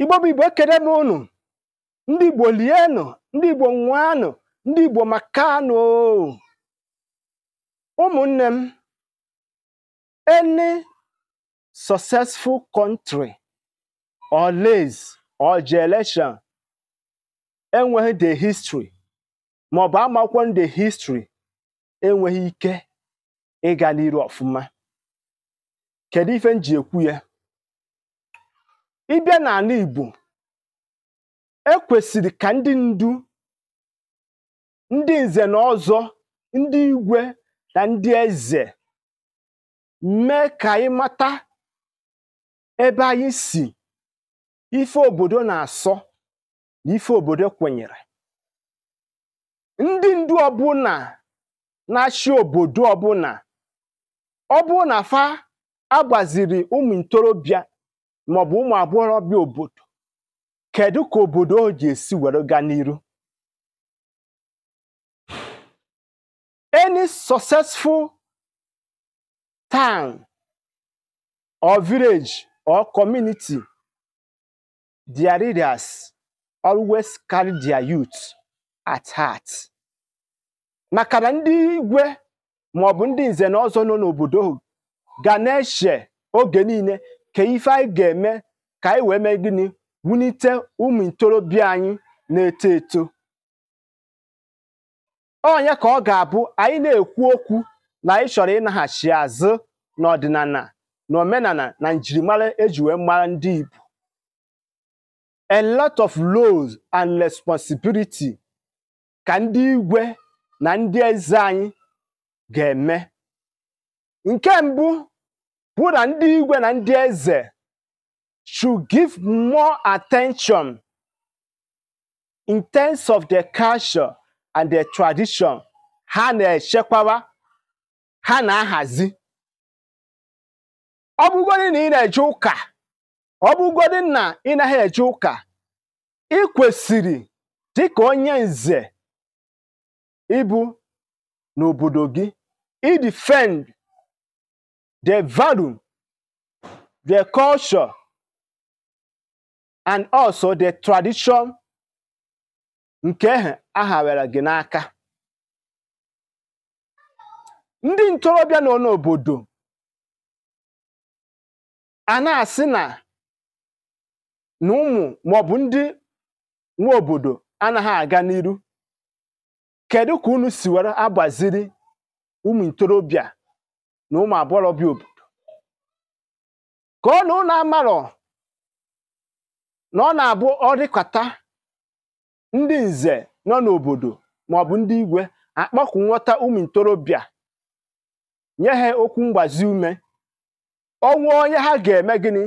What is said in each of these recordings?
igbo bụ igbo ekere m unu ndị igbo lienụ ndị igbo nwanụ ndị igbo makanụ ụmụnne m any successful country or lays or generation enweghị the history maọbụ amakwụkwọ nde history enweghị ike ịga n'iru ọfụma kedu ife m ji ekwu ya ịbịa n'ala Igbo e kwesịrị ka ndị ndu ndị nze na ọzọ ndị igwe na ndị eze mee ka anyị mata ebe anyị si ife obodo na-asọ na ife obodo kwenyere ndị ndu ọbụla na-achị obodo ọbụla ọ bụ na fa agbaziri ụmụ ntorobịa maọbụ ụmụ agbọghọbịa obodo kedu ka obodo o ji esi were gaa n'iru any successful town or village or community their leaders always carry their youth at heart maka ndị igwe maọbụ ndị nze na ọzọ nọ n'obodo ga na-eche oge niile ka ife anyị ga-eme ka anyị wee mee gịnị wulite ụmụ ntorobịa anyị na-eto eto onye ka ọ ga-abụ anyị na-ekwu okwu na anyị chọrọ ịnaghachi azụ n'ọdịnala na omenala na njirimara eji wee mara ndị Igbo a lot of laws and responsibility ka ndị igwe na ndị eze anyị ga-eme nke mbụ bụ na ndị igwe na ndị eze should give more attention in terms of their culture and their tradition ha na-echekwawa ha na-ahazi ọ na ị na-eje ụka ọ bụgodị na ị ụka ị kwesịrị dịka onye nze ịbụ n'obodo gị defend the value, the culture, and also the tradition nke aha were gị n'aka ndị ntorobịa nọ n'obodo a na-asị na na ụmụ maọbụ ndị nwa obodo anaghị aga n'iru kedu ka unu si were agbaziri ụmụ ntorobịa na ụmụ agbọghọbịa obodo ka ọ na ụnụ amarọ na ọ na-abụ ọrịkọta ndị nze nọ n'obodo maọbụ ndị igwe akpọkụ nghọta ụmụ ntorobịa nye ha okwu mgbazi ume ọnwụ onye ha ga-eme gịnị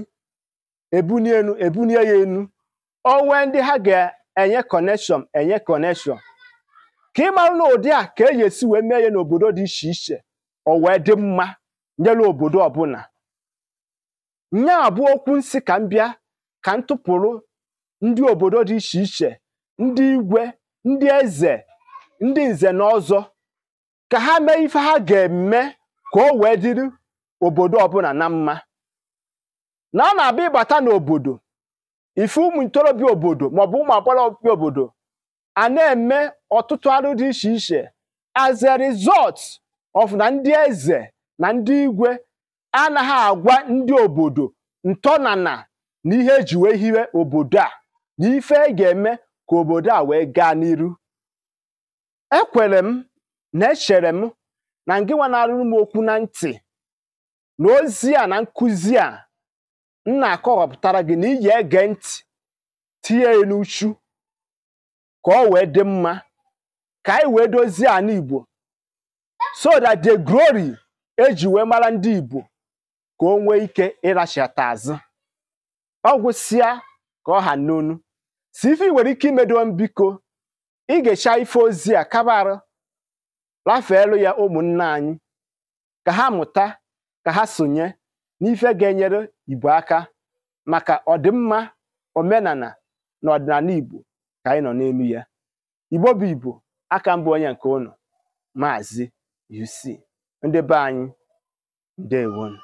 ebunie enu ebunie ya enu onwe ndị ha ga-enye kọneshọn enye kọneshọn ka ị marụ na ụdị a ka eji esi wee mee ya n'obodo dị iche iche o wee dị mma nyere obodo ọbụla nya bụ okwu nsị ka m bịa ka m tụpụrụ ndị obodo dị iche iche ndị igwe ndị eze ndị nze na ọzọ ka ha mee ife ha ga-eme ka o wee dịrị obodo ọbụla na mma na a na-abịa ịbata n'obodo ife ụmụ ntorobịa obodo maọbụ ụmụ agbọghọbịa obodo a na-eme ọtụtụ arụ dị iche iche as a result ọfụ na ndị eze na ndị igwe anaghị agwa ndị obodo ntọnana na ihe eji wee hiwe obodo a na ife e ga-eme ka obodo a wee gaa n'iru ekwere m na echere m na ngịnwa na m okwu na ntị na ozi a na nkụzi a m na-akọwapụtara gị na iyi ege ntị tinye n'uchu ka ọ wee dị mma ka anyị wee dozie ala so that the glory eji wee mara ndị Igbo ka o nwee ike ịrachata azụ ọ gwụsịa ka ọ ha n'onu si ife ị nwere ike imedo mbiko ị ga-echa ife ozi a kabarụ rafeelu ya ụmụnna anyị ka ha mụta ka ha sonye n'ife ga-enyere Igbo aka maka ọdịmma omenala na ọdịnala Igbo ka anyị nọ n'elu ya Igbo bụ Igbo aka mbụ onye nke ụnụ maazị you see ndị be they want.